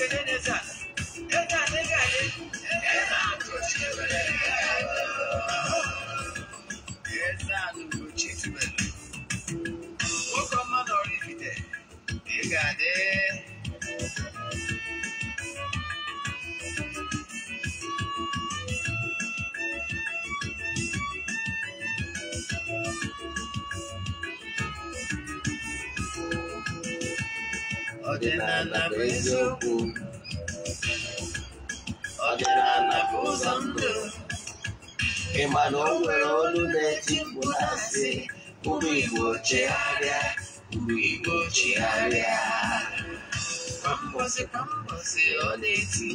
Eze a na-ege anyị ọdịnala bụ eziokwu ọdịnala bụ ụzọ ndụ ịma na o nwere olu na-etipụ na-asị ụmụ igbo chegharịa ụmụ igbo chegharịa kwambosi kwambosi ọ na-eti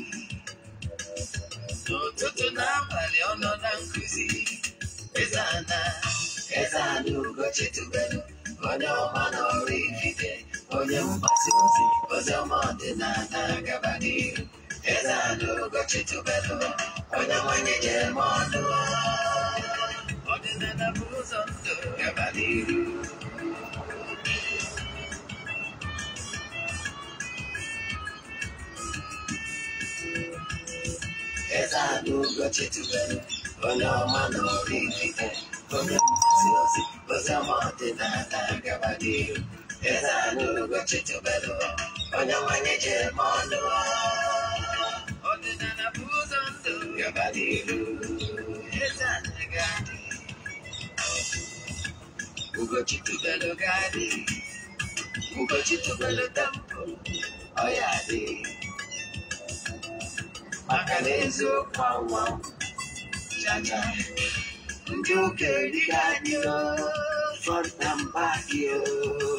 n'ụtụtụ n'abalị ọ nọ na nkụzi ezana ezana ugochitubelu onye ọma na ọrụ igide onye mgbasa ozi oziọma ọdịnala gabadịru eze ala ụbọchị tubelu oya nwanyị jere m ọnụ ọdịnala bụ ụzọ ndụ gabadịru eze ala ụbọchị tubelu onye ọma na ọrụ ibite onye mgbasa ozi oziọma ọdịnala gabadịru ezaluluka chichubelo onyamanyeje mondo ondinanabuzo ndu yabadilu ezanegadi ugochitubelo gadi ugochitubelo tampo oyadi maka na eziokwu anwa chacha ndị ụka erighị anyị fọrta mba gị oo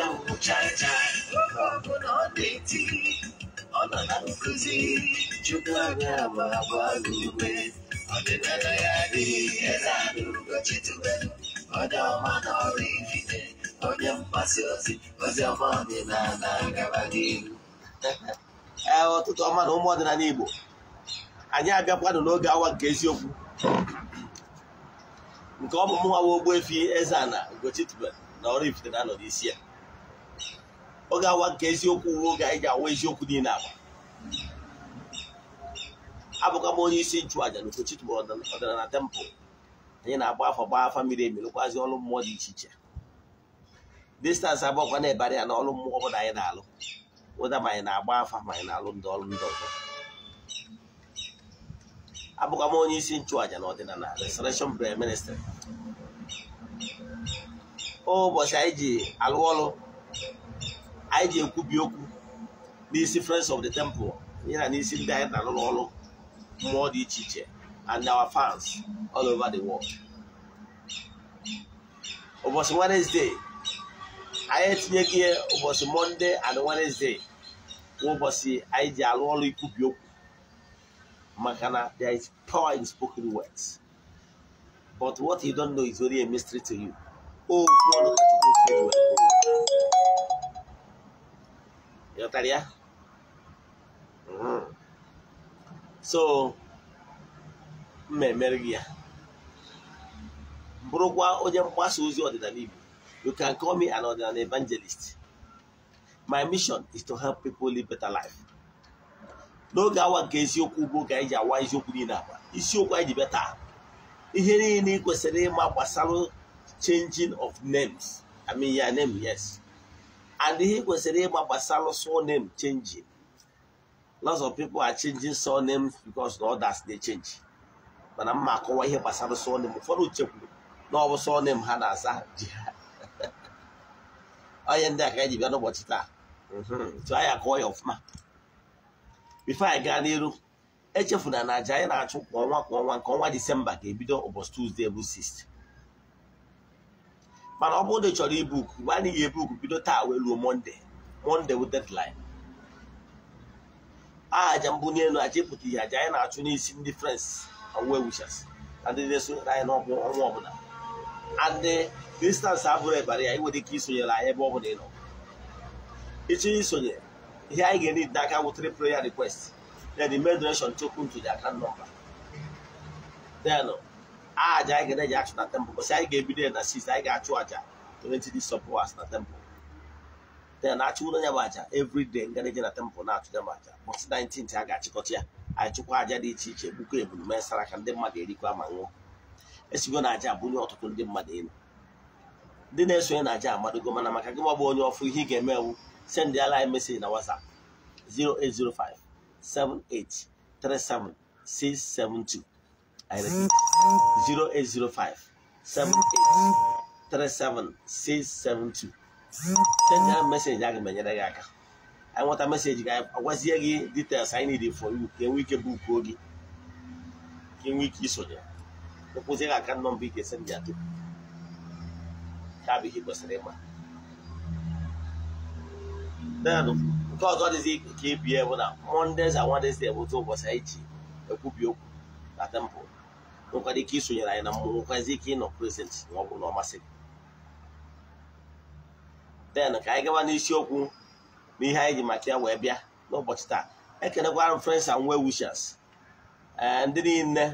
ọ ọ nọ na agba adịghị eze ifite onye ozi ozi ọma n'ihu ee ọtụtụ ọma na ụmụ ọdịnala Igbo anyị abịakwanụ n'oge awa nke eziokwu nke ọmụmụ nwa efi, Eze-Ana Ugochi tubelu na ifite na-anọ n'isi ya ọ ga-awa nke eziokwu ruo oge anyị ji awa eziokwu niile agba abụkwa m onye isi nchụaja na Ugochi tụgburu ọdịnala na tempụl anyị na-agba afọ gba afa miri emi lụkwazị ọrụ mmụọ dị iche iche distansị abụọkwa na-ebara ya na ọrụ mmụọ ọbụla anyị na-alụ ụda ma anyị na-agba afa ma anyị na-alụ ndị ọrụ ndị ọzọ abụkwa m onye isi nchụàja na ọdịnala restoration prayer ministry ụbọchị anyị ji alụ ọrụ anyị ji ekwubi okwu n'isi friends of the temple ya na n'isi ndị anyị na-arụrụ ọrụ mmụọ dị iche iche and our fans all over the world ụbọchị Wednesday anyị etinyeghị ihe ụbọchị Monday and Wednesday ụbọchị anyị ji arụ ọrụ ikwubi okwu maka na there is power in spoken words but what you don't know is only a mystery to you okwu oh, You got so mmemme gị ya bụrụkwa onye mgbasa ozi ọdịnala Igbo you can call me an ọdịnala evangelist my mission is to help people live better life n'oge awa nke eziokwu bụ ga-eji ji awa eziokwu niile agba isiokwu anyị ji beta ihe niile ị kwesịrị ịma gbasara changing of names I mean ya name yes and ihe kwesịrị ịgba gbasara surname chenji. lots of people are changing surnames because the others dey change mana mma akọwa ihe gbasara surname ụfọdụ chekwuru na ọ bụ ha na-asa ji ha onye ndị a ka eji bịa n'ụbọchị taa tụ mhm. anyị akọwa ya ọfụma bifo anyị gaa n'iru echefuna na aja anyị na-achụ kwa ọnwa kwa ọnwa nke ọnwa disemba ga-ebido ụbọchị tuzdee bụ 6 mana ọ bụrụ na ị chọrọ ibuk mgbe a naghị ebuk bido taa wee ruo monde monde wụ deadline aja mbụ n'elu aja ịpụta ihe aja anyị na-achụ n'isi ndị frans wewuchas na ndị na-esonyere anyị ọnwa ọbụla ndị distansị abụrụ ebara ya inwere ike isonyere anyị ebe ọ bụla ị nọ ịchọ isonye ihe anyị ga-eri n'aka wụtara prayer request then the main direction chokwu ntuli aka nọmba aja anyị ga-eji achụ na tempụ, bụsị anyị ga-ebido ya na 6 anyị ga-achụ aja 20 days of hours na tempụl then ya bụ aja everyday ngareji na tempụ na-achụ ya bụ aja bọsị 19 a ga-achịkọta ya anyị chụkwa aja dị iche iche bụkwa ebulu mee sara ka ndị mmadụ erikwa ma nwụọ esigo na aja abụnye ọtụtụ ndị mmadụ elu ndị na-esonye na aja amadogo mana maka gị gbagba onye ọfụ ihe ị ga-eme ewu send ala anyị meseji na WhatsApp 0805 7837 672 I 0805 a message aga gị aka anyị nweta meseji gị agwazie gị details need for you isonye gị aka kwesịrị then bụ na mondays and anyị ji ekwubi temple nwekwara ike isonyere anyị na mmụọ nwekwazi ike ịnọ present ma ọ bụrụ na ọ masịrị. den ka anyị gaba n'isiokwu n'ihe anyị ji maka ya wee bịa n'ụbọchị taa ekenekwara m friends and well eh, ndị niile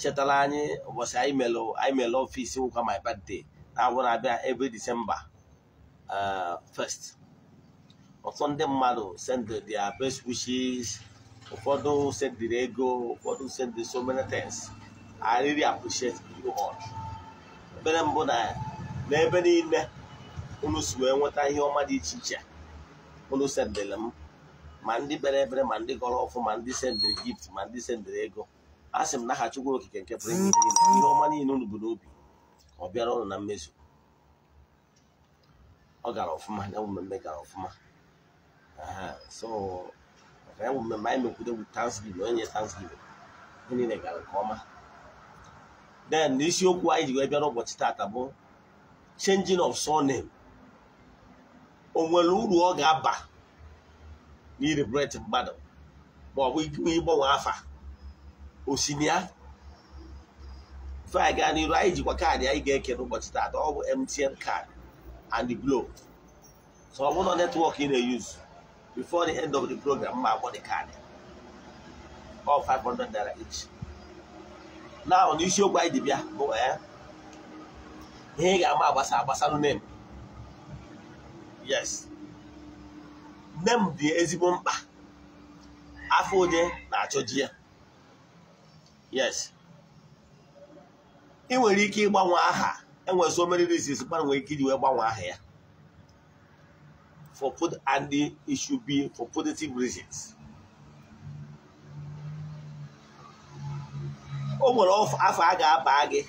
chetara anyị ụbọchị anyị mere anyị mere ọfisi nwụkwa my birthday na-abụ na-abịa every December eh, first ọtụtụ ndị mmadụ send dia best wishes ụfọdụ sendiri ego ụfọdụ sendiri so many things I really appreciate you all. ekpere mbụ na n'ebe niile unu si wee nweta ihe ọma dị iche iche unu sendịrị m ma ndị bere ebere ma ndị gọrọ ọfụ ma ndị sendịrị gift ma ndị sendịrị ego a sị m n'aha Chukwu okike nke pụrụ ihe ọma niile unu bụ n'obi ọ bịara ụlọ na mmezu ọ gara ọfụma ya mmemme gara ọfụma so ya mmemme anyị mekwudo bụ Thanksgiving onye nye Thanksgiving ihe niile gara nke ọma then isiokwu anyị ji wee bịara ụbọchị tata bụ changing of surname o nwere uru ọ ga-aba n'iribret mmadụ ma ọ bụ ịgbanwe afa osinia fai gaa n'iru anyị jikwa kaadị anyị ga-eke n'ụbọchị tata ọ bụ MTN card and the Glo so ọ bụrụ netwọk ị na-eyuzu before the end of the program ma agwọ the kaadị ọ 500 naira each na ọ na isiokwu anyị dịbịa bụ ya ihe ị ga-ama agbasa agbasa nem yes nem dị ezigbo mkpa afọ onye na-achọji ya yes ị nwere ike ịgbanwe aha enwere so many reasons mmadụ nwere ike iji wee gbanwe aha ya for put and it should be for positive reasons o nwere afọ a ga-aba gị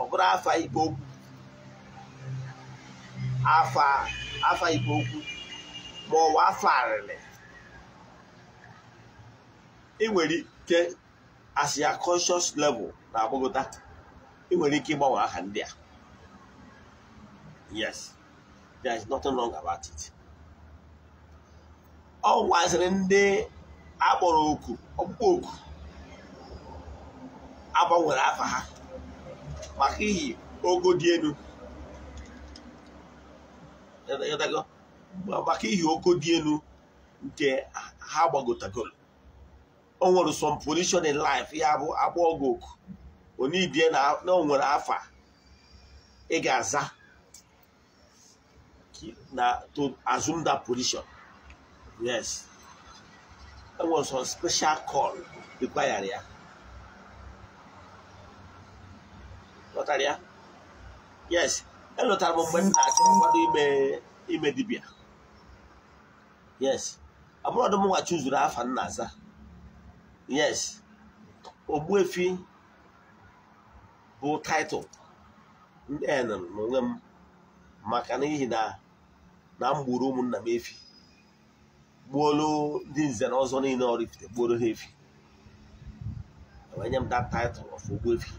ọ bụrụ afọ igbo okwu afọ igbo okwu ma ọ bụ afọ arịrị ị nwere ike as ya conscious level na agbagota ị nwere ike ịgbanwe aha ndị a yes there is nothing wrong about it ọ gwaziri ndị akpọrọ oku ọkpụkpọ oku agbanwere afa ha maka ihi ogo dị elu maka ihi ogo dị elu nke ha gbagotagoro o nwere some position in life ya bụ agba ogo oku onibie na o nwere afa ị ga-aza na to assume that position. Yes. That was a special call required ya. ịghọtara ya yes elụtara m mgbe m na-achọ ime ime dibịa yes abụrụ m nwa chụzuru afa nna aza yes ogbuefi bụ taịtụl ndị enụrụ n'onwe m maka n'ihi na na m ụmụnna m efi gbuolu ndị nze na ọzọ niile ọrifite gbuoro ha efi enyem m taịtụl title ogbuefi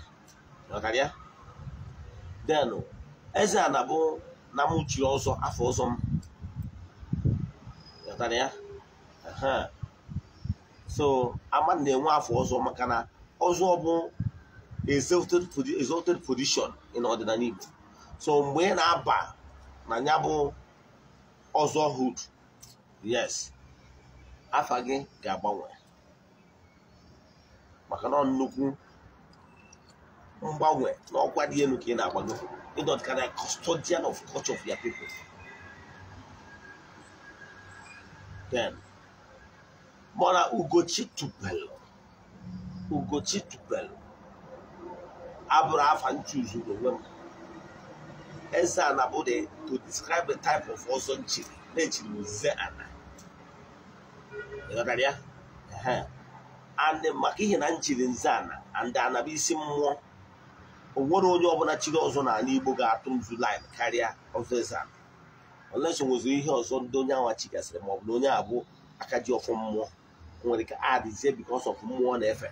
ya denụ eze a na-abụ na ọzọ afọ ọzọ m ghọtara ya so ama na-enwe afọ ọzọ maka na ọzọ bụ exalted position n'ọdịnala Igbo so mgbe ị na-aba na ya bụ ọzọ hood yes afa gị ga-agbanwe maka na nnukwu mgbanwe na ọkwa dị elu ka ị na-agbago ịdọt ka na custodian of culture of your people then mana ugochi tupelu ugochi tupelu abụrụ afa nchuzu n'onwe m eze ana bụ to describe the type of ọzọ nchiri na-echiri uze ana ịghọtara ya Anị maka ihe na nchiri nze ana and ana bụ isi mmụọ o nwere onye ọbụla chiri ọzọ n'ala Igbo ga-atụ nzu lin karịa ọzọ ezan ọlesi nwezi ihe ọzọ ndị onye anwa chigasịrị maọbụ na onye abụ aka ji ọfụ mmụọ nwere ka adịzie bikos ọf mmụọ na-efe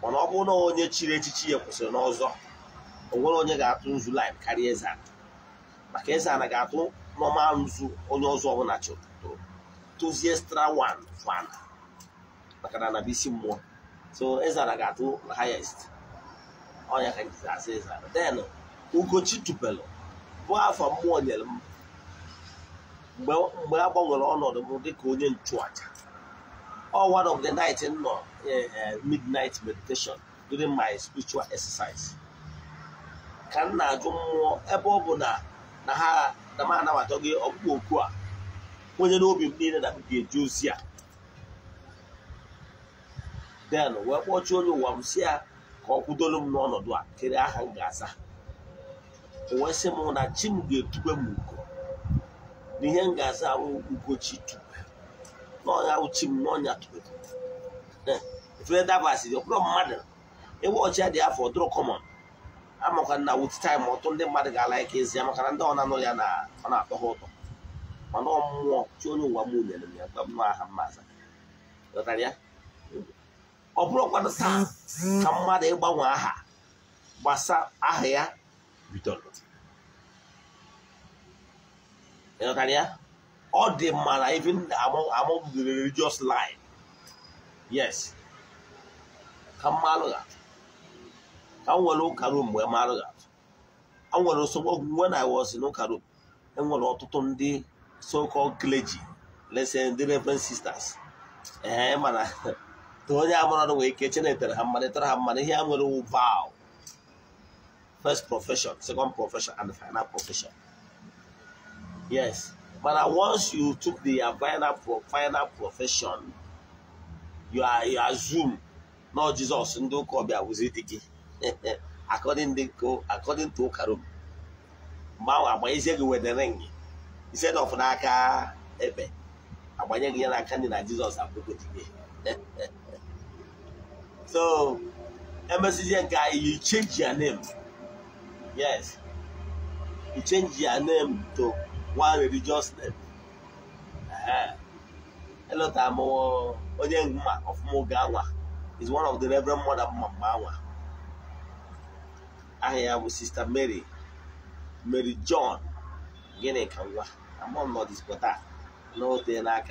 mana ọ bụrụ na onye chiri echichi ya kwụsịrị n'ọzọ o nwere onye ga-atụ nzu lin karịa ezan maka eza ga-atụ nọma nzu onye ọzọ ọbụla chụrụ tụzie stra wan fan maka na anabisi mmụọ so ezan ga-atụ highest onye ka njizi e asa ịza den ugochi tupelu bụ afọ mmụọ nyere m mgbe a gbanwere ọnọdụ m dịka onye nchụaja all one of the night nọ eh, eh, midnight meditation during my spiritual exercise ka m na-ajụ mmụọ ebe ọ bụ na ha na m anabata gị ọkpụkpọ oku a onye n'obi m niile na m ga-eji ozi a den wee kpọchie onye ụwa m si ya ka ọ kwudolu m n'ọnọdụ a kere aha m ga-aza o wee sị m na chi m ga-etube m ugo na ihe m ga-aza ahụ ugochi tube n'ọnya uchi m n'ọnya tube efere dabasịrị ọbụrụ mmadụ ewe ọchị dị afọ dụrụ kọmọn amakwa na wut taim ọtụ ndị mmadụ ga-ala ike ezi ya maka na ndị ọ na-anụ ya na ọ na-akpọ ha ụtọ mana ọ mmụọ chi onye ụwa mụ nyere m ya gwa m aha mma aza ya ọ bụrụ bụrụkwanụ taa ka mmadụ ịgbanwe aha gbasa aha ya bidoro ya ọ dị mma na even among the religious line yes ka mma alụghatụ ka m nwere ụka rum mgbe m alụghatụ a nwere nsogbu ọgwụgwe na iwọs n'ụka rum enwere ọtụtụ ndị so-called clergy lesson ndị reverend sisters ee mana Tonya Amonado we kitchen it, Hammanetra Hammaniam will vow. First profession, second profession, and final profession. Yes. But once you took the final, final profession, you are you assume, no Jesus, Ndo Kobia Wuzidiki. According to according to Karum. Mao Amaizegi Wederengi. Instead of Naka Ebe. Abanyegia Nakani na Jesus Abuko Dige. So, MSC guy, you change your name. Yes. You change your name to one religious name. Uh-huh. Elota onye Onyengma of Mogawa is one of the Reverend Mother mma I have Sister Mary, Mary John, Gene Kawa. I'm on not this, but that. No, they're not.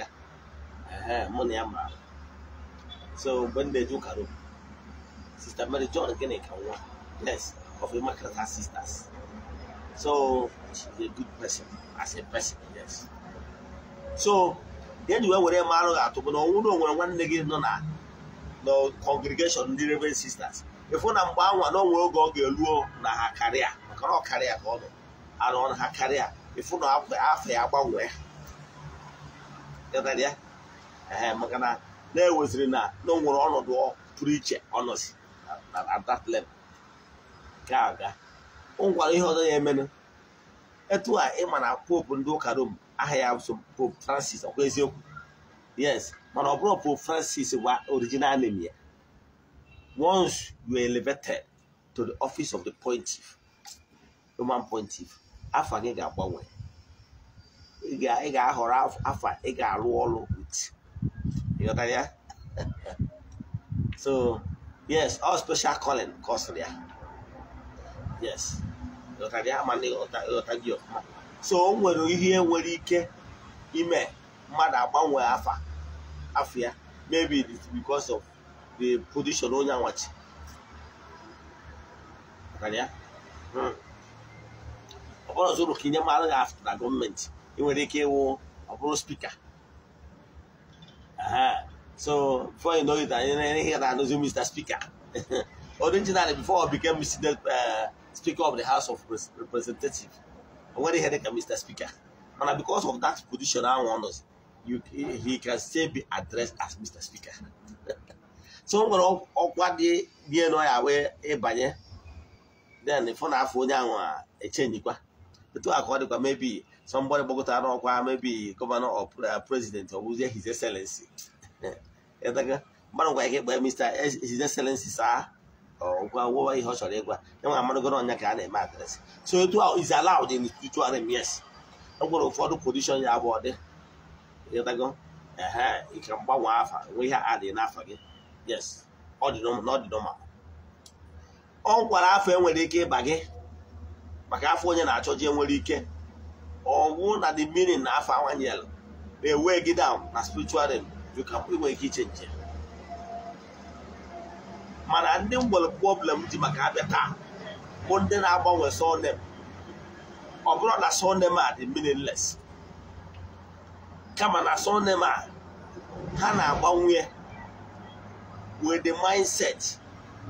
Money, I'm So, when they do, Sister Mary John Geneka one of Immaculate Sisters. So she's a good person as a person, yes. So then you were mara atụ bụ na ọnwụ na onwere nwanne gị nọ na congregation ndị Reverend Sisters. ifu na mgbe anwa na oge ọ ga elu na ha karịa maka ọ karịa ka ọ nọ na ha karịa ịfụ na ya gbanwee maka na na-eweziri na ọnọdụ pụrụ iche ọ at that level ka aga o nkwara ihe ọzọ ya emenụ etu a ịma na pope ndị ụka Rome aha ya so pope Francis ọkwa eziokwu yes mana ọ bụrụ pope Francis gwa original name ya once you are elevated to the office of the pontiff Roman pontiff afa gị ga-agbanwe ị ga-ahọrọ afa ị ga-arụ ọrụ with ịghọtara ya so yes all oh, special calling kọsịrị ya yes ịghọtara ya ịghọta gị ọkụma so o nwere ihe nwere ike ime mmadụ agbanwe afa afọ ya maybe it is because of the position onye nwachi. ya hmm. ọ bụrụ ọzọ ka inye mmadụ gị afọ na gọọmenti ị nwere ike ịwụ ọ spika So before you know it, I hear that knows you, Mr. Speaker. Originally, before I became Mr. Uh, Speaker of the House of Representatives, I already had like Mr. Speaker. And because of that position, I want us, you, he can still be addressed as Mr. Speaker. so nwere ọkwa dị enu ya wee ịbanye then fụ na afọ onye ahụ echenjikwa etu a ka ọ dịkwa mebi somebody gbagotara n'ọkwa mebi gọvanọ or uh, president ọ bụzie his excellency mmadụ gwara gị gbaa mista his selensi saa gwa wụwa ihe ọ chọrọ ịgwa ya nwa amarụgoro ọnya ka a na-eme adresị so etu is allowed in m. Yes. ọ gwara ụfọdụ kondishọn ya bụ ọdị ịghọtago ehe ike mgbanwe afa nwe ihe adị n'afa gị yes ọ dị n'ọdịnọma ọ nkwara afọ enwere ike ịba gị maka afọ onye na-achọji achọ enwere ike ọgwụ na the meaning na afọ awanyelu na-ewe gị down na spiritual realm bikapụ nwere ike iche mana ndị m problem ji maka abịa taa bụ ndị na-agbanwe surname ọ bụrụ na surname a dị meaningless kama na surname a ha na-agbanwe with the mindset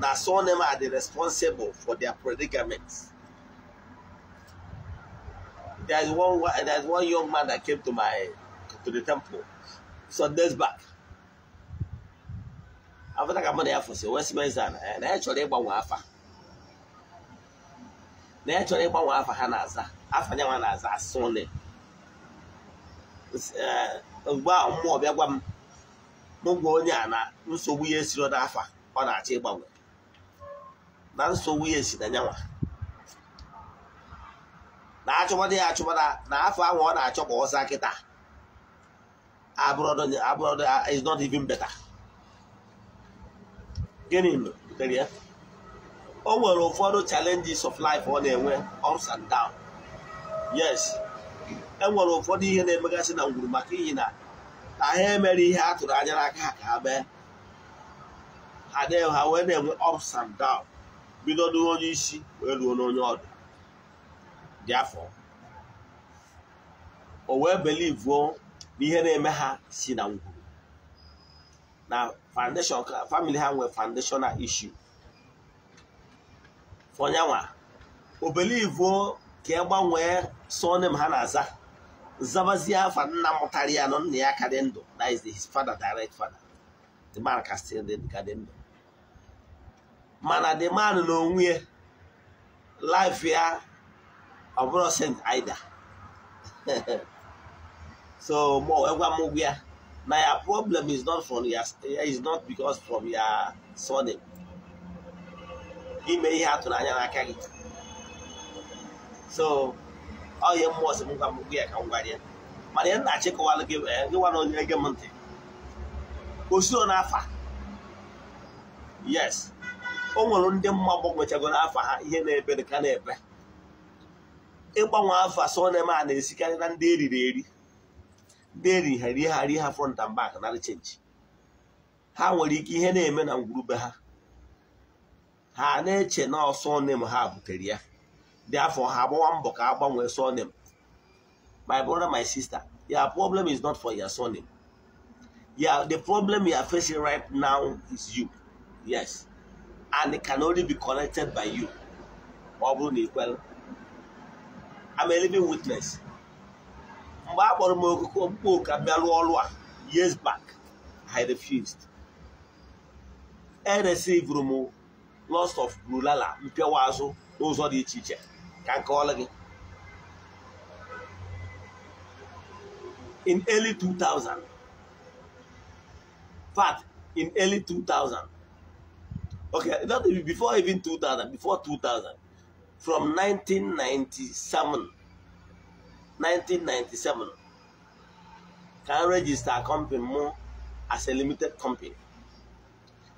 na surname a dị responsible for their predicaments. There is one there is one young man that came to my to the temple. some days back afta ka mmadụ ya fụsị Westminster eh, na ya chọrọ ịgbanwe afa na ya chọrọ ịgbanwe afa ha na-aza afa nyanwa na-aza asụle mgbe a mmụọ bịa gwa m mụ gwa onye a na nsogbu ya esiro n'afa ọ na-achọ ịgbanwe na nsogbu ya esi na nyanwa na achụmadị ya achụmada na afọ ahụ ọ na-achọ ka ọ saa kịta abroad abroad uh, is not even better gịnị butere ya o nwere ụfọdụ challenges of life ọ na-enwe ups and down yes e nwere ụfọdụ ihe na-emegasị na ngwuru maka ihi na na ha emere ihe a tụrụ anya aka ha ka ha mee ha na wee na-enwe ups and down bido n'onye isi wee ruo n'onye dị afọ o wee belivuo na ihe na-eme ha si na ngwuru na foundation family ha nwere foundational issue onyanwa obelivo ka e gbanwee surname ha na-aza zabazie afa nna mụtara ya nọ nna ya dị ndụ that his father direct father the man ka dị ka dị ndụ mana the man na onwe ya life ya ọ bụrụ sent ida So Mwagwa eh, my uh, problem is not from your eh, is not because from your surname. Ime ihe atụrụ anya n'aka gị. So ọ oh, ya mmụọ eh, si ngwa mmụọ ya ka m gwara ya. Mana ya na-achịkọwalụ gị gịwa na onye gị m ntị. Osuro n'afa. Yes. O nwere ndị mma gbanwechago n'afa ha ihe na-ebe dị na-ebe. Ịgbanwe afa sọ na-eme a na-esikarị na ndị eriri eri. ndị eri ha ha front and back narị chenji ha nwere ike ihe na-eme na ngwurube ha ha na-eche na ọsọ ha butere ya dị afọ ha agbawa mbọ ka a gbanwee sọ my brother my sister your problem is not for your sọ nem the problem you are facing right now is you yes and it can only be connected by you ọ bụrụ na ikwere I'm a living witness mgbe a kpọrọ m okoko mkpa ka bịa rụọ ọrụ a years back I refused eresivụrụ m lost of brulala mpịawa azụ n'ụzọ dị iche iche ka m kọọla gị in early 2000 fat in early 2000 okay that before even 2000 before 2000 from 1997 1997 ka m register company mụ as a limited company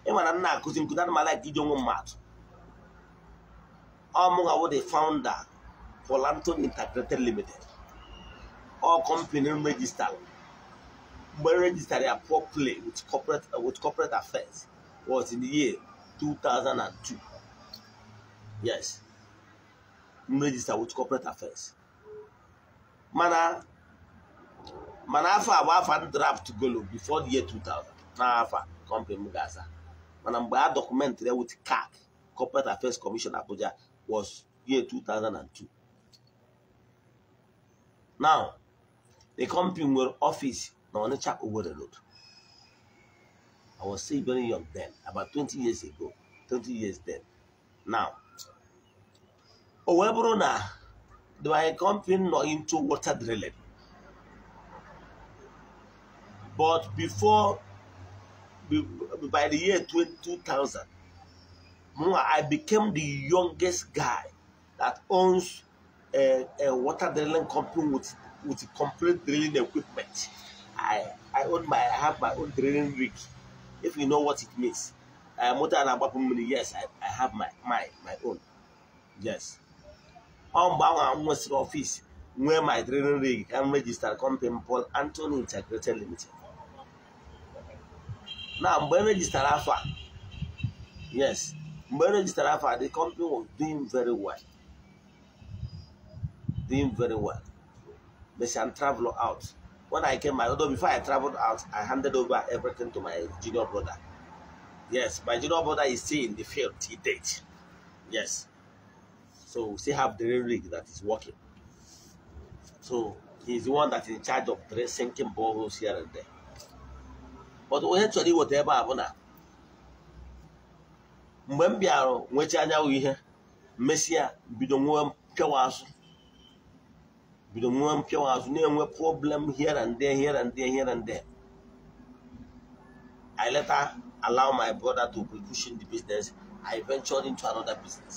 ịmara m na-akụzi nkụzi ana m like iji onwe mmadụ ọ the founder Polanton Integrated Limited ọ company m register mgbe m register ya properly with corporate with corporate affairs was in the year 2002 yes m register with corporate affairs mana mana afọ abụ afọ draft golo before the year 2000 na afọ kọmpani m ga-asa mana mgbe a dọkụmentịrị with CAC Corporate Affairs Commission Abuja was year 2002 now the company nwere office na Onitsha owere Road I was still very young then about 20 years ago 20 years then now o wee bụrụ na they were accompanying not into water drilling. But before, by the year 2000, I became the youngest guy that owns a, a water drilling company with, with complete drilling equipment. I, I own my I have my own drilling rig, if you know what it means. Uh, motor and yes, I, I have my, my, my own. Yes. ọ mgbe ahụ m nwesịrị nwee my training rig ka register company Paul Anthony Integrated Limited na mgbe e rejistara afọ yes mgbe e rejistara afọ a the company was doing very well doing very well Messian travel out when I came my order before I traveled out I handed over everything to my junior brother yes my junior brother is still in the field till date yes So we still have drilling rig that is working. So he's the one that's in charge of drilling, sinking boreholes here and there. But eventually whatever happened na mgbe mbịarụ bịara nwecha anyanwụ ihe mesịa bido nwe mpịawa azụ bido nwe na-enwe problem here and there here and there here and there I later allow my brother to be pushing the business I ventured into another business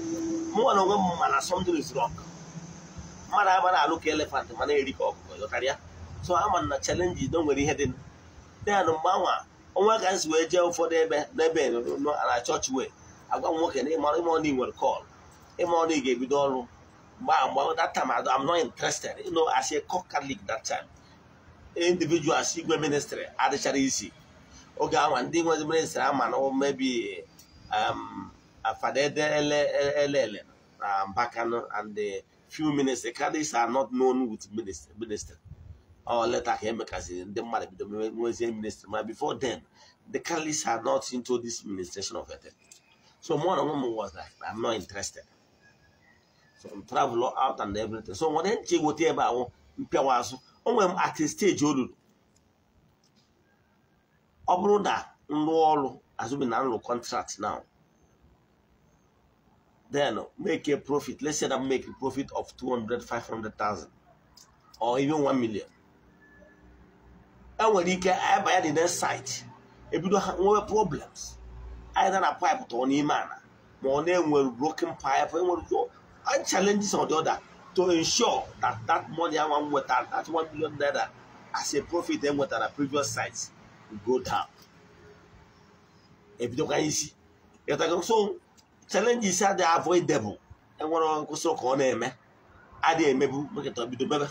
mụnwa na onwe m mana something is wrong mmadụ agbara na-alụ ka elefant ma na-eri ka ọkụkọ ịghọtara so ama na chalenji do nwere ihe dị ya na mgbanwe onwe ka nsi wee jee ụfọdụ ebe n'ebe e na chọọchị wee agwa m nwoke na ịma na ị nwere kọl ịma na ị ga-ebido ọrụ mgbe mgbe that time I'm not interested you know as a catholic that time si igwe ministrị adịchara isi oge anwa ndị nwe ministrị ama na mebi Afadele Mbakano, and the few ministers, candidates are not known with minister. minister. Or later came because the minister. But before then, the candidates are not into this administration of it. So one of them was like, I'm not interested. So I'm traveling out and everything. So when I go there, I mpịawaazụ at steji stage ruru ọ bụrụ na m rụọ na nrụ kọntrakt now then make a profit. Let's say that make a profit of 200, 500,000 or even 1 million. And when you can I buy the next site, if you don't have problems, either a pipe to any man, more name will broken pipe and challenges or the other to ensure that that money I want with that, that 1 million dollar as a profit then with our previous sites will go down. If you don't can see, so challenges adị avoidable enwere nkwụsị ka ọ na-eme adị emebu mekịta bido bebe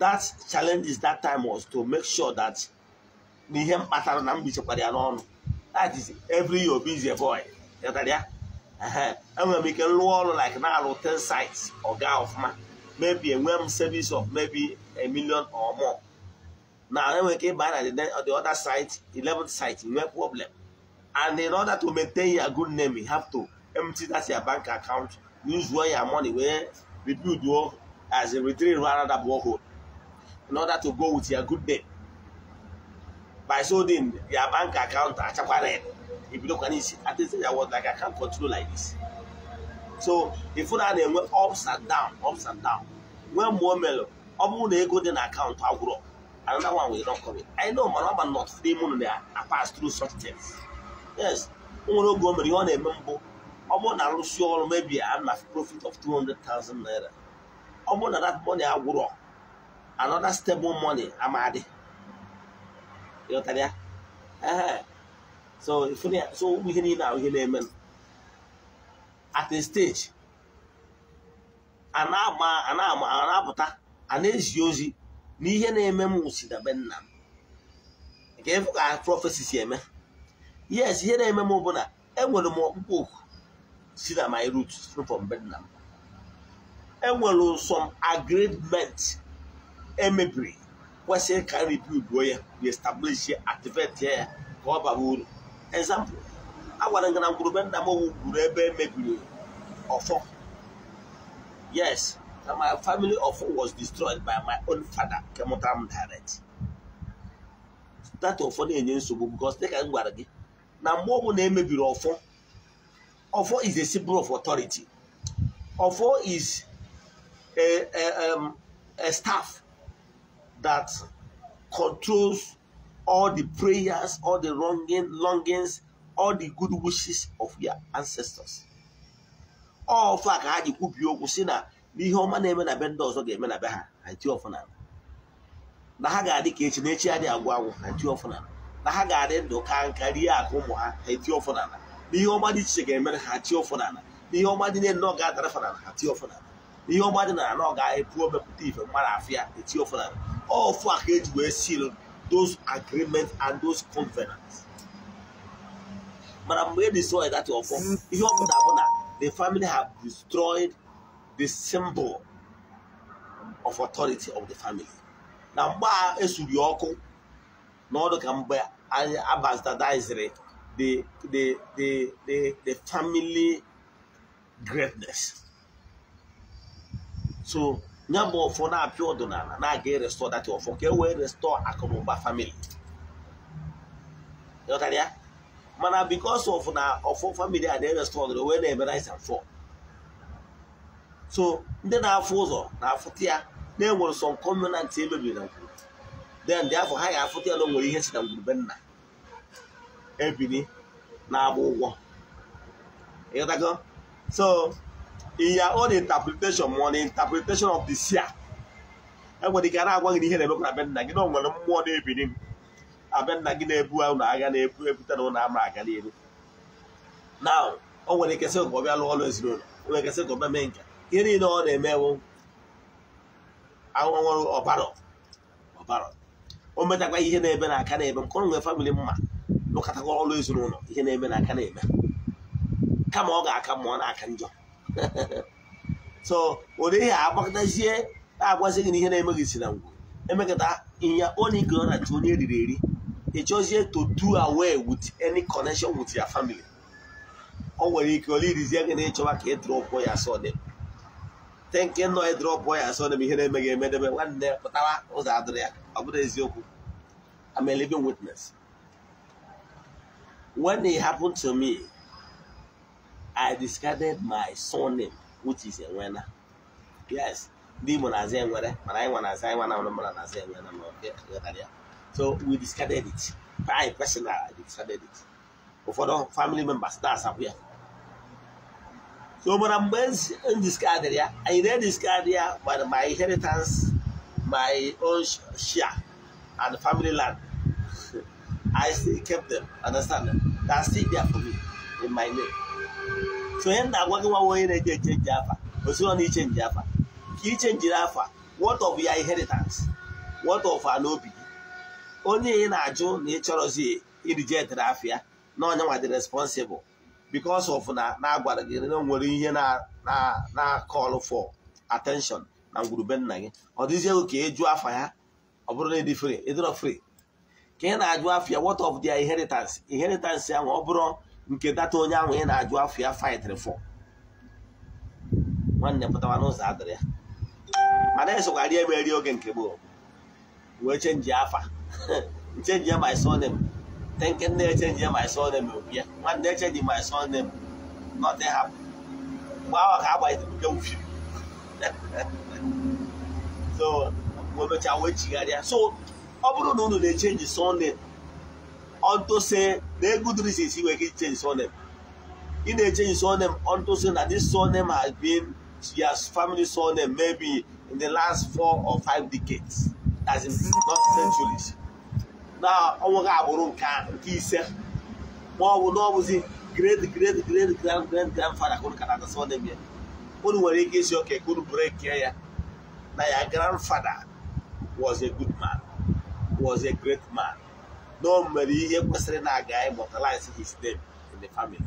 that challenge is that time was to make sure that na ihe mkpatara na mgbichekwara ya n'ọnụ that is every year busy boy ghọtara ya enwere m ike nrụọ ọrụ like na-alụ 10 sites ọga ọfụma maybe enwe m service of maybe a million or more na enwere ike ịba na the other site 11 site nwee problem And in order to maintain your good name, you have to empty that your bank account, use all your money wey rebuild you as a retreat rather another borehole In order to go with your good name. By so your bank account achakwana if you look at it, at least I word like I can't continue like this. So if you are went ups and down, ups and down. When more mellow, ọ bụ na ego dị na akaụntụ agwụrụ, another one will not come in. I know man, I'm not free money. I pass through such things. yes nwere oge o mere ihe ọ na-eme mbụ ọ bụrụ na arụsị ọrụ mebie ana profit of 200,000 naira ọ bụrụ na that money agwụrọ another stable money amadi ịghọtara ya ee so ụmụ ihe niile ahụ ihe na-eme at a stage a na-apụta a na-ezi ozi na ihe na-eme m si dabe nna m nke ịfụ ka prọfesi si eme yes ihe na-eme m bụ na enwere m ọkpụkpọ oku si na my root from Vietnam enwere some agreement emebiri kwesịrị ka rebuilduo ya reestablish ya activate ya ka ọ baba uru example agwara gị na ngwurube nna gwuru ebe emebiri ọfọ yes na my family ọfọ was destroyed by my own father kemụtara m direct that ọfọ na-enye nsogbu because dịka m gwara gị na mgbe na emebiri ọfọ ọfọ is a symbol of authority ọfọ is a, a, um, a staff that controls all the prayers all the longing, longings all the good wishes of your ancestors ọfọ a ka ha ji kwubie okwu si na n'ihe ọma na-eme na be ndị ọzọ ga-eme na be ha na ha ga-adị ka echi na echi adị agwụ agwụ na ti ọfọ na na ha ga-adị ndụ ka nka rie akụ ụmụ ha ha eti ọfọ n'ala n'ihe ọma dị iche ga-emere ha tie ọfọ n'ala n'ihe ọma dị niile ọ ga-adarafa n'ala ha tie ọfọ n'ala n'ihe ọma dị n'ala ọ ga-epu mepụta ife mmadụ afịa eti ọfọ n'ala ọfụ a ka eji wee seal those agreements and those covenants mana mgbe e destroy that ọfọ ihe ọ bụla bụ na the family have destroyed the symbol of authority of the family na mgbe a esuru ọkụ n'ọdụ ka mgbe a abastadiziri the, the, the, the, family greatness. So, bụ ọfọ na-apịa ọdịnala na-aga erestọ dati ọfọ ka e wee restọ akụnụba famili ya mana bikos of na ọfọ famili a na-erestọ ọdịnala wee na-eme rice and fall so ndị na-afụ ụzọ na-afụta ya na-enwere sọ nkọmenantị emebiri na ngwuru then dị afọ ha ga tia ya na o nwere ihe si na ebili na-agba ụgwọ ịghọtago so in ya own interpretation ma the interpretation of the seer enwere ike a na-agwa gị ihe na-emekwa na be nna gị na o mmụọ na-ebili m abe nna gị na-ebu ụlọ agha na-ebu ebute na ụlọ ama aga n'elu na o nwere ike sị ka ọ lụọ ọrụ ezinụlọ nwere ike sị ka ọ bịa mee nke ihe niile ọ na-emewo ahụhụ nwere ọbara ọbara o metakwa ihe na-ebe na aka na-ebe nke ọ nwere famịlị mma lụkọtago ọrụ ezinụlọ ihe na-eme na aka na-eme kama ọ ga-aka ma ọ na-aka njọ so ụdịghị agbakọtazie na-agwazi gị na ihe na-eme gị si na ngwụ emekọta ịnya onye ike ọ na-achụ onye eriri eri ịchọzie to do away with any connection with your family o nwere ike ọla irizie gị na ịchọwa ka ị ya asọ dị te nọ ị ya asọ dị bụ ihe na-eme gị emedebe nwanne pụtara ụzọ adịrị ya ọ bụrụ eziokwu I'm a when it happened to me, I discarded my surname, which is Enwena. Yes, demon as Enwena, but I want as I want, I'm not Enwena. So we discarded it. I discarded it. Ụfọdụ family members that's up here. So mana mgbe m discarded ya, I then discard ya by my inheritance, my own share and family land. I still kept them. Understand? they are still there for me in my name. So when that working one way they change Java, but you don't change Java. You change Java. What of your inheritance? What of an obi? Only in a Joe nature of the reject Rafia. No one was responsible because of na na agwara gị na nwere ihe na na na call for attention na ngwurube nna gị ọ dịzie ka eju afa ya ọ bụrụ na ịdị e free ịdịrọ e free ka ị na-ajụ afịa what of dia inheritance inheritance ahụ ọ bụrụ nke data onye ahụ ị na-ajụ afịa fightr for nwanne pụtawa n'ụzọ adịrị ya mana esokwarị emeri oge nke gboo wee chenji afa chenji my surname na echenji my surname bịa nwanne echenji my surname nothing ha. mgbe ahụ ka agbaghịtere uke so wee wee chigharịa so ọ bụrụ na unu na-echenji surname ọntụsị na good reasons ị nwere ike ichenji surname ị na-echenji surname ọntụsị na this surname has been your family surname maybe in the last four or five decades as in not centuries na ọnwụ gị agbụrụ nke ise ma ọ bụ na ọ bụzi great great great grand grand grandfather ka unu ka na-ata surname ya unu nwere ike isi oke ka unu brekee ya na ya grandfather was a good man was a great man na o mere ihe kwesịrị na-aga immortalize his name in the family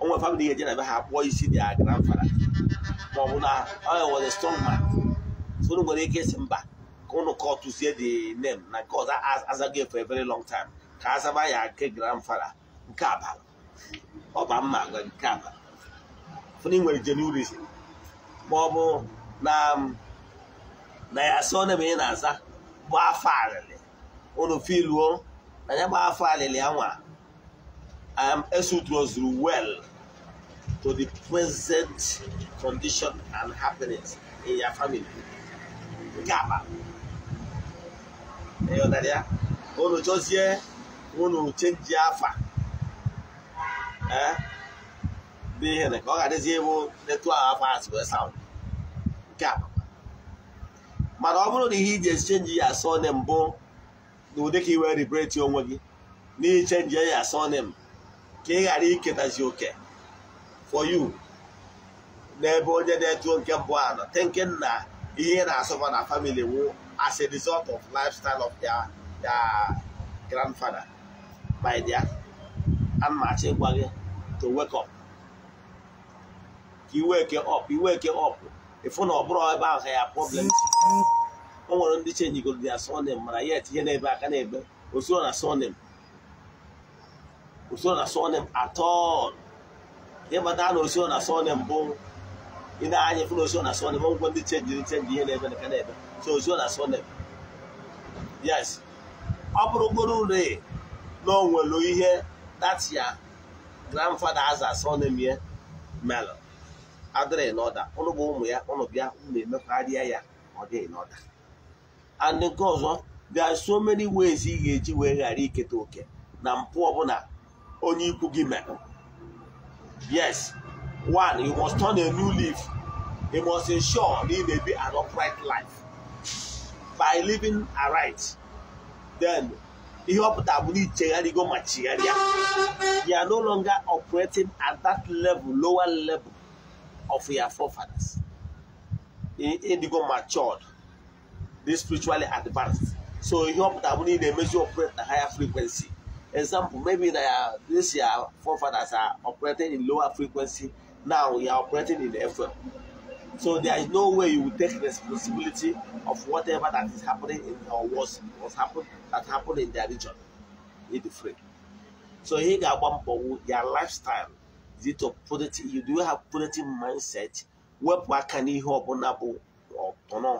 o nwere family ga-eje na be ha kpụọ isi dị a grandfather ma ọ bụ na ọ was a strong man so nwere ike isi mba ka unu kọtụzie the name na nke ọzọ azaghị for a very long time ka azaba ya nke grandfather nke abalị ọba mma agwa nke abalị fụna nwere jenurisi ma ọ bụ na um, ya asị na-eme ị na-aza bụ afọ arịrị unu filuo na ya gbaa afọ alili anwa I am esutrozuru well to the present condition and happiness in your family nke aba ịghọtara eh, ya unu chọzie unu chenji afa dị ihe na ka ọ ga-adịzi ewu netu ahụ afọ asị wee saụndụ nke aba mana ọ bụrụ na ihe iji echenji ya eh? oh, asọ ne mbụ na ka i wee ribreti onwe gị n'iche ya sonim ka ị ghara iketazi oke for you n'ebe onye na eto nke mbụ a nọ thinking na ihe na-asọba na family wụ as a result of lifestyle of their their grandfather by their anmachi gwa gị to wake up ka iweke iwe ke up ịfụ na ọ bụrụ ebe ahụ ya problem o nwere ndị chenjigoro ya sonim mana ya etinye n'ebe aka n'ebe osoro na sonim osoro na sonim atọl ịmata na osoro na sonim bụ ị na-anya fụ na osoro na sonim ngwa ndị chenjiri chenji ihe n'ebe aka n'ebe so osoro na sonim yes ọ bụrụgoro ure na o nwere ihe datia grandfather aza sonim ya melon adịrị n'ọda ụnụ bụ ụmụ ya ụnụ bịa ụnụ emekwarịa ya ọ dịghị n'ọda and nke ọzọ there are so many ways ị ga-eji wee ghara iketa oke na mpụ ọbụla onye ikwu gị mere yes one you must turn a new leaf you must ensure na ị na an upright life by living aright then ihe ọpụta bụ na ichegharịgo ma chigharịa ya no longer operating at that level lower level of your forefathers ịdịgo matured dị spiritually advanced so ihe ọpụta bụ na ị na-emezi operate na higher frequency example maybe na ya uh, this ya forefathers are operating in lower frequency now you are operating in FM so there is no way you will take responsibility of whatever that is happening in or was was that happen in their region in the free so ihe ga-agba mbọ your lifestyle is it a positive you do have positive mindset wepụ aka n'ihe ọbụla bụ ọtọnọ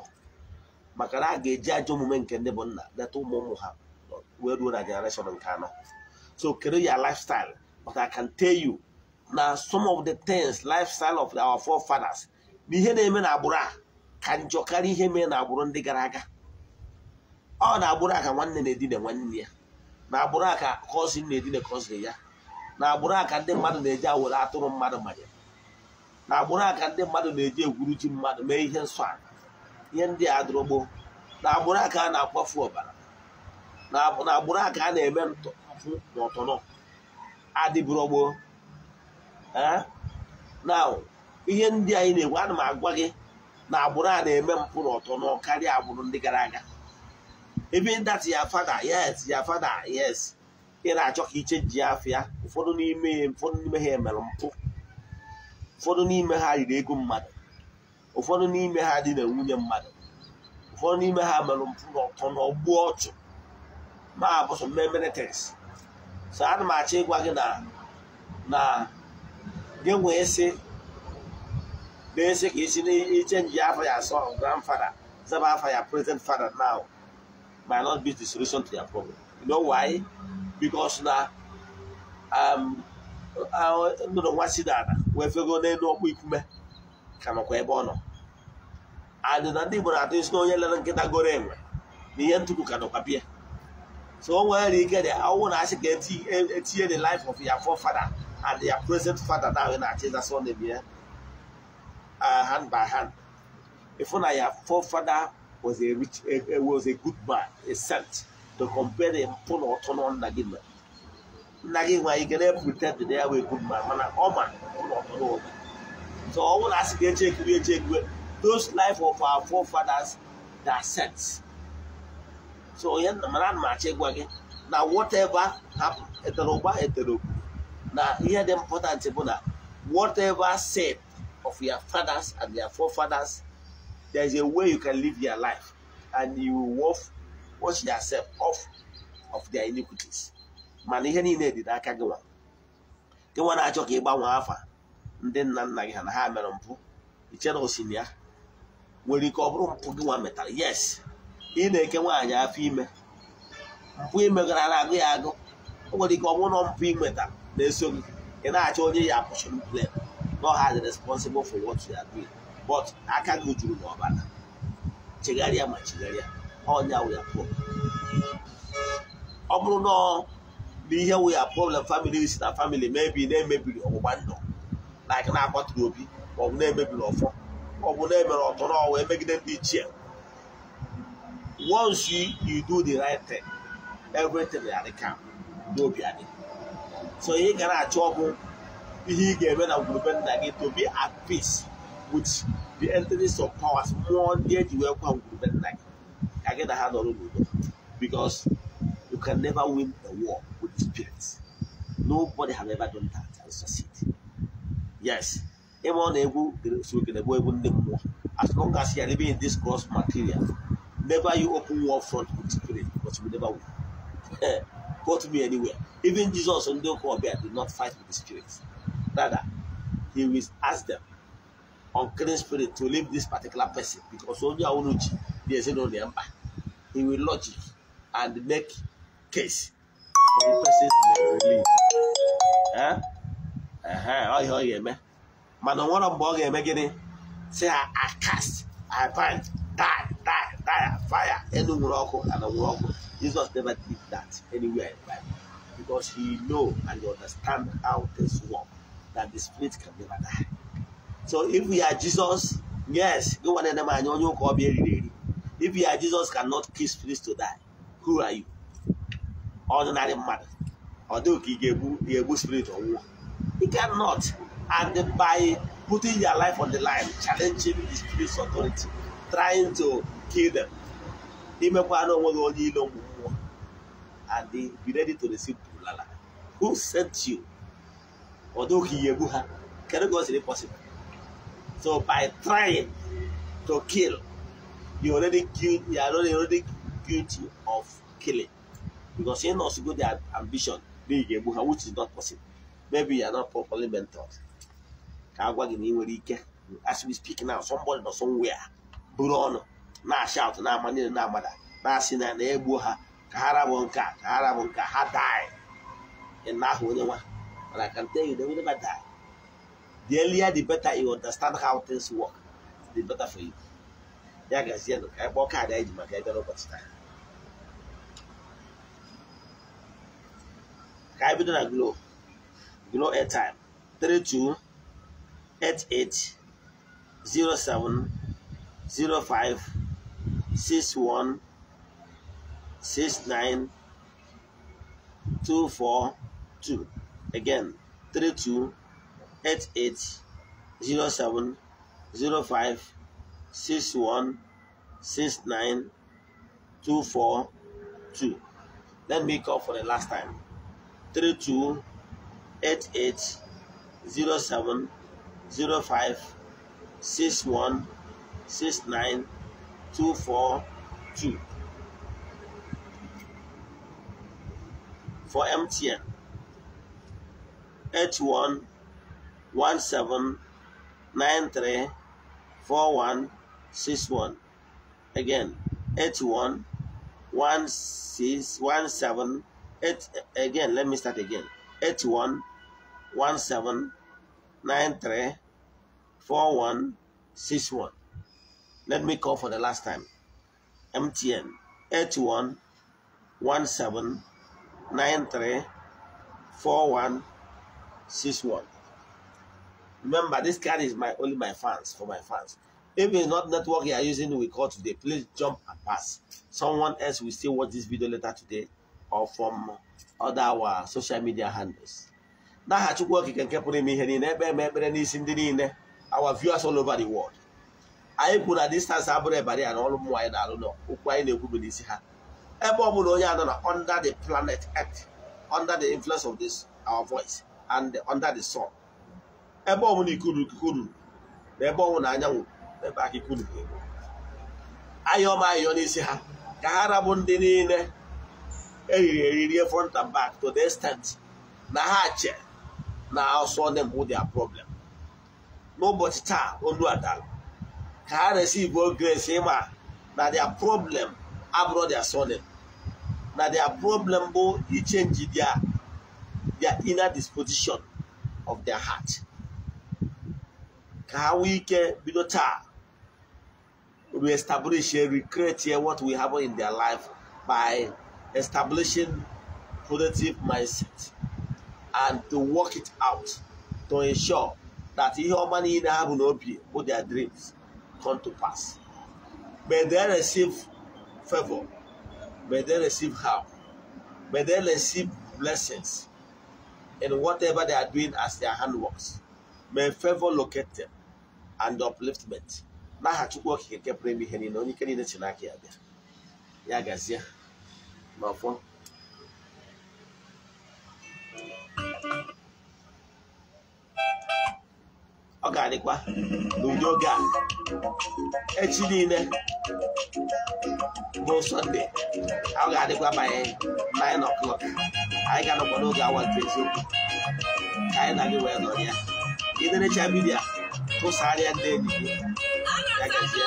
maka na a ga-eji ajọ omume nke ndị bụ nna leta ụmụ ụmụ ha wee ruo na generation nke anọ so kedu ya lifestyle but I can tell you na some of the things lifestyle of our forefathers na ihe na-eme na agbụrụ a ka njọ karịa ihe mee na agbụrụ ndị gara aga ọ na agbụrụ a ka nwanne na-edina nwanne ya na agbụrụ a ka cousin na-edina cousin ya na agbụrụ a ka ndị mmadụ na-eji awere atụrụ mmadụ manya na agbụrụ a ka ndị mmadụ na-eji egwuru ji mmadụ mee ihe nsọ ala ihe ndị a adụrụgbo na agbụrụ aka a na-akwafu ọbara na agbụrụ aka a na-eme mpụ na adịbụrọgbo na ihe ndị anyị na-egwu ana m agwa gị na agbụrụ a na-eme mpụ na karịa agbụrụ ndị gara aga ebe ndati ya fada yes ya fada yes ị na-achọ ka iche ji afịa ụfọdụ n'ime ha emere mpụ ụfọdụ n'ime ha riri ego mmadụ ụfọdụ n'ime ha dị na nwunye mmadụ ụfọdụ n'ime ha merụ mpụ ọtọ na ọchụ ma abụsọ mmemere tes so ana m achọ ịgwa gị na na gị nwee sị na-esi ka isi na-echenji afọ ya asọ grandfather zaba afọ ya present father now not be the na nwa si wee fego n'elu ikume kamakwa ebe ọ nọ adị na ndị Igbo na-atụ isi na lere nkịta goro enwe na ihe ntupu ka nọkwa pịa so o nwere ike dị ọnwụ na asị ka e, etinye the life of ya forefather and ya present father na na-achị ịza sọ na ya hand by hand ịfụ na ya forefather was a rich was a good man a saint to compare mpụ na ọtọ na nna gị nna gị nwanyị ike na-epụta dị na ya wee good man mana ọ ma na ọtọ na obi So ọ bụrụ asị ka eche ekiwe eche ekiwe those life of our forefathers that sent. So onye mara ana na whatever happened etere ụgba na ihe dị important bụ na whatever said of your fathers and your forefathers there is a way you can live your life and you will wash yourself off of their iniquities. mana ihe niile dị n'aka gị nwa gị nwa na-achọ ka ị gbanwee afa ndị nna nna gị ha na ha mere mpụ ichere osi na ya nwere ike ọ bụrụ mpụ gị nwa metara yes ị na-eke nwaanyị afọ ime mpụ imegara na-agụ ya agụ o nwere ike ọ bụrụ na mpụ imeta na-eso gị ị na-achọ onye ya apụchụrụ plen no ha dị responsible for what you are doing but aka gị juru n'ọbara chegharịa ma chegharịa ọnya wụ ya pụọ ọ bụrụ na n'ihe wụ ya problem family si na family mebi na-emebiri ọgbụgba ndụ na aka na-akpatụrụ obi maọbụ na-emebiri ọfọ maọbụ na-emere ọtọ na-eme n'ọwa emegide ndị ichie once you you do the right thing everything will adị ka n'obi adị so ihe ị ga na-achọ ọgwụ ihe ị ga-eme na ngwurube nna gị to be at peace with the entities of powers mmụọ ndị eji wee kwa ngwurube nna gị ka gị na ha nọrọ n'udo because you can never win a war with the spirit nobody have ever done that and succeed yes ịma ọ na-egwu sokenegbu egwu ndị mmụọ as long as you living in this cross material never you open wall front with spirit but you never will eh to me anywhere even Jesus ndị ụka ọbịa did not fight with the spirit rather he will ask them clean spirit to leave this particular person because onye ahụ n'uchi dị ezinụlọ ya mba he will logic and make case for the person's release. Eh? ọ ihe ọ ga-eme mana ọ nwere mgbe ọ ga-eme gịnị si ha akast aband die die die fire elu nwere ọkụ ala nwere ọkụ Jesus never did that anywhere in the Bible because he know and he understand how things work that the spirit can never die so if we are Jesus yes gị nwanne nne m anya onye ụka ọbịa eriri eri if you are Jesus cannot kiss spirit to die who are you ordinary mmadụ ọ dịghị ka ị ga-egbu spirit ọnwụọ You cannot. And by putting your life on the line, challenging the spirit's authority, trying to kill them, imekwana onwe gị onye ilo mmụọ and they be ready to receive bulala. Who sent you? Although he yebu ha, can God say possible? So by trying to kill, you already killed you are already guilty of killing because you know, so good their ambition, which is not possible. maybe you are not properly mentored ka as we speak now somebody or somewhere Bruno, ọnụ na-ashout na-ama niile na-amada na-asị na ashout na ama niile na amada na asị na na ha ka ha rabụ nke a ka ha rabụ nke ha die ịna ahụ onye nwa mana I can tell you they will never die the earlier the better you understand how things work the better for you ya gazie nụ ka anyị kpọọ kaadị anyị ji maka ebe n'ụbọchị taa ka anyị bido na glo you know airtime 32 88 07 05 61 69 242 again 32 88 07 05 61 69 242 let me call for the last time 32 Eight eight zero seven zero five six one six nine two four two 07 05 for MTN seven nine three four one six one again eight one one six one seven eight 8 again let me start again one one seven nine three four one six one. Let me call for the last time. MTN eighty one one seven nine three four one six one. Remember, this card is my only my fans for my fans. If it's not network you are using, we call today. Please jump and pass. Someone else will still watch this video later today or from other our social media handles. n'aha chukwu okike nke pụrụ ime ihe niile ekpe eme ekpere n'isi ndị niile awa viewers all over the world anyị kwuru na distance abụrụ ebari ya na ọrụ mmụọ anyị na-alụ n'okwu anyị na-ekwu bụ n'isi ha ebe ọ bụla onye anọ na under the planet earth under the influence of this our voice and under the sun ebe ọ bụla ikuru ikuku ruru na ebe ọnwụ na anyanwụ na ebe aka ikuru anyị ọma ayọ n'isi ha ka ha rabụ ndị niile eriri eri e front and back to the extent na ha che na I'll solve them with their problem. N'ụbọchị taa olu adala ka ha Igbo grace ịma na their problem abụrụ their solid na their problem bụ ichenji their their inner disposition of their heart ka ha nwee ike bido taa and recreate what will happen in their life by establishing productive mindset. and to work it out to ensure that ihe ọma niile ha will be, bụ their dreams come to pass. May they receive favor. May they receive help. May they receive blessings in whatever they are doing as their hand works. May favor locate them and upliftment. N'aha Chukwu Okike nke pụrụ ime ihe niile onye ike niile si n'aka ya bịa. Ya gazie. Ma fọ. ga-adịkwa n'ụdị oge a echi niile bụ sọnde ọ ga-adịkwa by 9 o'clock anyị ga-anọkwa n'oge awa nke eziokwu ka anyị na gị wee nọ ya iderecha vidiyo tụsara ndị enyi gị ya gazie